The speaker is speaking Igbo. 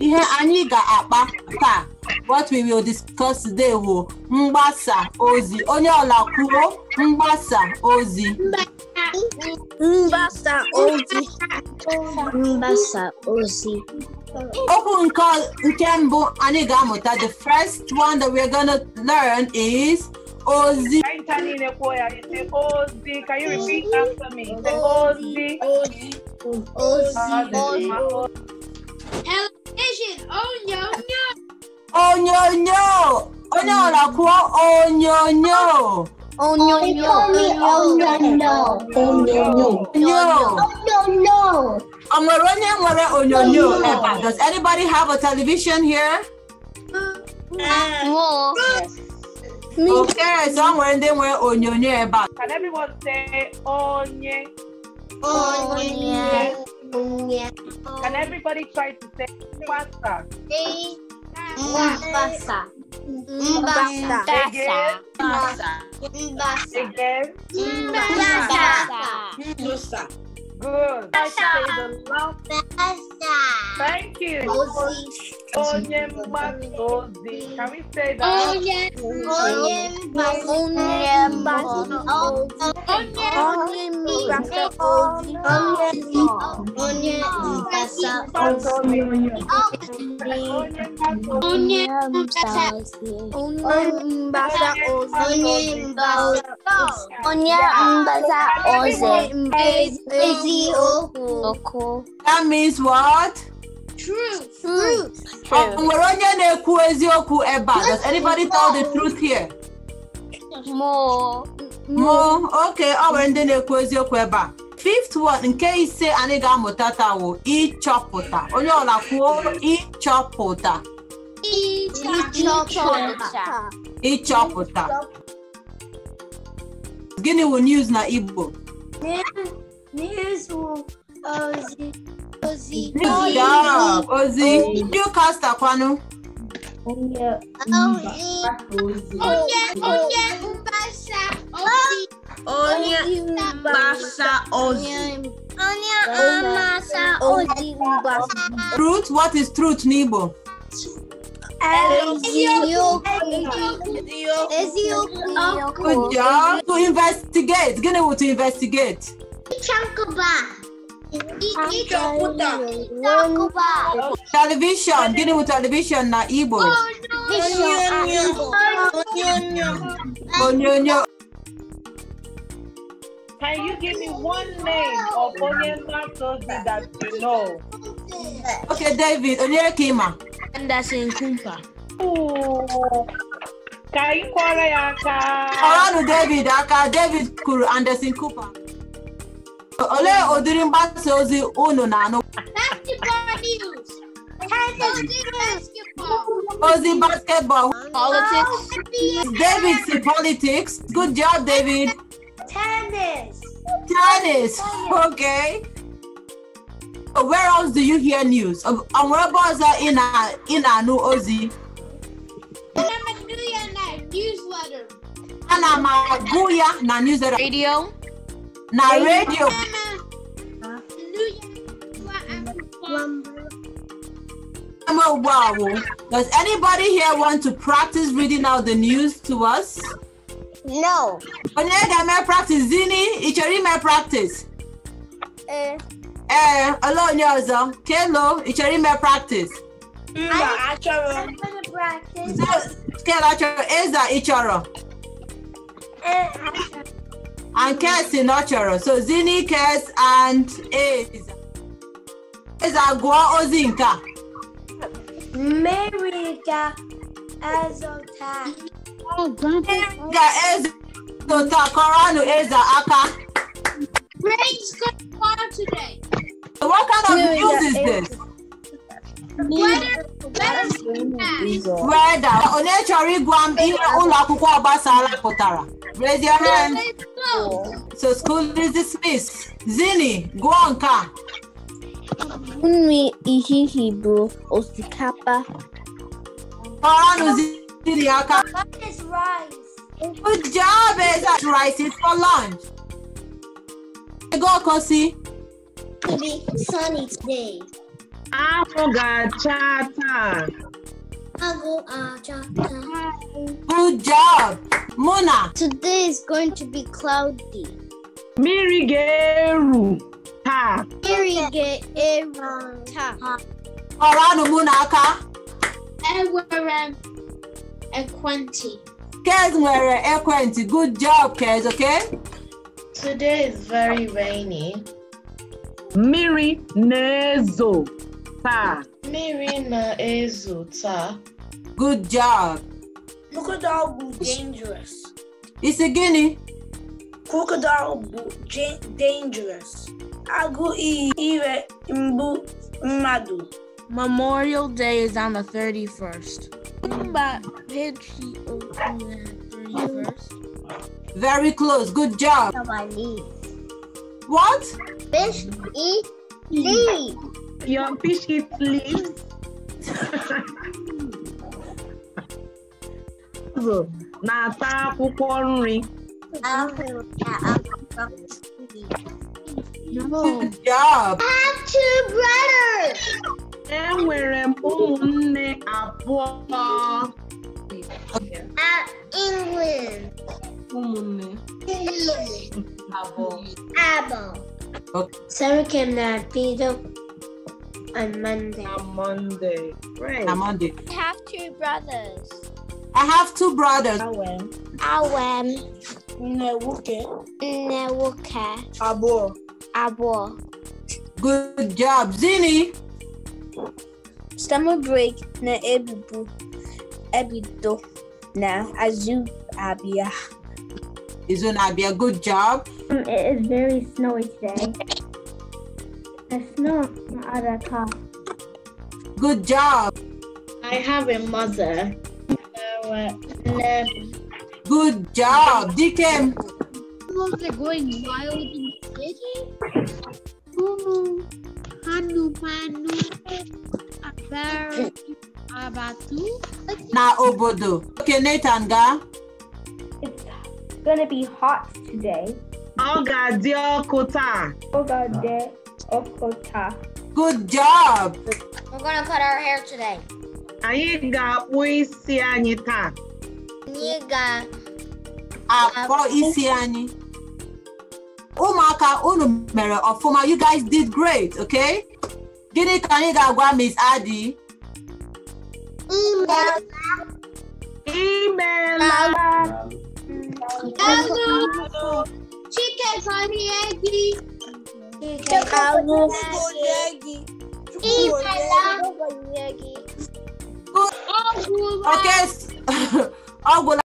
ihe anyị ga-akpa taa what we will discuss today bụ mgbasa ozi onye ọla kwuo mgbasa ozi mgbasa ozi mgbasa ozi okwu nke nke mbụ anyị ga-amụta the first one that we're gonna learn is ozi ozi can you repeat after ozi ozi ozi la Onion, onion, onion. Onion, unakuwa onyonyo. Onyonyo. Onyonyo. Onyoronye nwere onyonyo ever. Does anybody have a television here? No. Okay, so nwere ndị nwere onyonyo ebe a. Can everyone say onye? Onye. Can everybody try to say pasta? Mbasa. Mbasa. Again. Mbasa. Again. Mbasa. Good. Pasta. Thank you. Oye, Macosi. Can we say that? Oye, Oye, Oye, Oye, Oye, Oye, Oye, That means what? True. nwere onye na-ekwu eziokwu ebe a does anybody tell the truth here mụ oke ọ nwere ndị na-ekwu eziokwu ebe a fifth word nke ise anyị ga-amụta taa wụ ịchọpụta onye ọla kwuo ịchọpụta ịchọpụta gịnị wụ news na Igbo Ozi, Ozi. Good job, Ozi. Ozzy. You cast Aquano. Onye. Ozzy. Onye. Onye. Mbasa. Ozzy. Onye. Mbasa. Ozzy. Onye. Mbasa. Ozzy. Mbasa. Truth. What is truth, Nibo? Good job. To investigate. Gini to investigate. Chankoba. Television, dealing with television na Igbo. Onyonyo. Can you give me one name of Onyema Toby that you know? Okay, David, Kima. Anderson Kumpa. Ooh. Ka ị kwọrọ ya aka? Ọranụ David aka, David kụrụ Anderson Cooper. olee ụdịrị mgbasa ozi unu na-anụ ozi basketball politics david si politics good job david tennis tennis okay where else do you hear news onwere ebe ọzọ ị na-anụ ozi ana m agụ ya na newsletter radio na radio does anybody here want to practice reading out the news to us no onye ga-eme practice zini ị chọrọ ime practice ee eh. ee eh, ole onye ọzọ kelo ị chọrọ ime practice mba achọrọ kelo achọrọ eza ị chọrọ and cares in nurture. So Zini cares and is is agwa ozinka. Meriga ezota. Oh, Meriga ezota koranu eza aka. Brain's going on today. what kind of news is this? Weather, weather, weather. Onye chọrọ ịgwa m ihe ụlọ akwụkwọ ọgbasara pụtara. Raise your hand. So school is dismissed. Zini, Guanca. Unmi ihihi bro osikapa. Parano zini What is rice? Good job, Eza. Eh, rice is for lunch. Go, Kosi. it be sunny today. Afuga Go, uh, Good job. Mona. Today is going to be cloudy. Mirigeru. ha. Mirigeru. ha. Orano Mona aka. Ewere equenti. Kez nwere ekwenti. Good job, Kez, okay? Today is very rainy. Miri nezo. Mmiri na-ezo taa. Good job. Crocodile bụ dangerous. Isi gịnị? Crocodile bụ dangerous. Agụ iyi ire mgbu mmadụ. Memorial Day is on the 31st. Mba Patriot Very close. Good job. What? Fish eat leaves. Your fish eats leaves. na-ata akwụkwọ nri. Good job. I have two brothers. Enwere m ụmụnne abụọ. At England. Ụmụnne. Abụọ. Abụọ. Sorry, can I be the on Monday. On Monday. Right. On Monday. I have two brothers. I have two brothers. Awen. Awen. Nnewoke. Nnewoke. Abo. Abo. Good job. Zini. Summer break na ebibu. Ebido na azu abia. Isn't abia. Good job. It is very snowy today. Yes, no, not a car. Good job. I have a mother. Uh, and, um, Good job, Deacon. Was going wild in the city? Mumu, Hanu, Manu, Abar, Abatu. Na obodo. Okay, Nathan, ga. It's gonna be hot today. Oh God, dear kota. Oh God, dear. Okota. Good job. We're gonna cut our hair today. Aiga ta. Niga. Ako isiani. Umaka unu mere ofuma. You guys did great, okay? Gini kaniga gwa Miss Adi. Email. Email. Email. Chicken for the eggie. Algo Okay.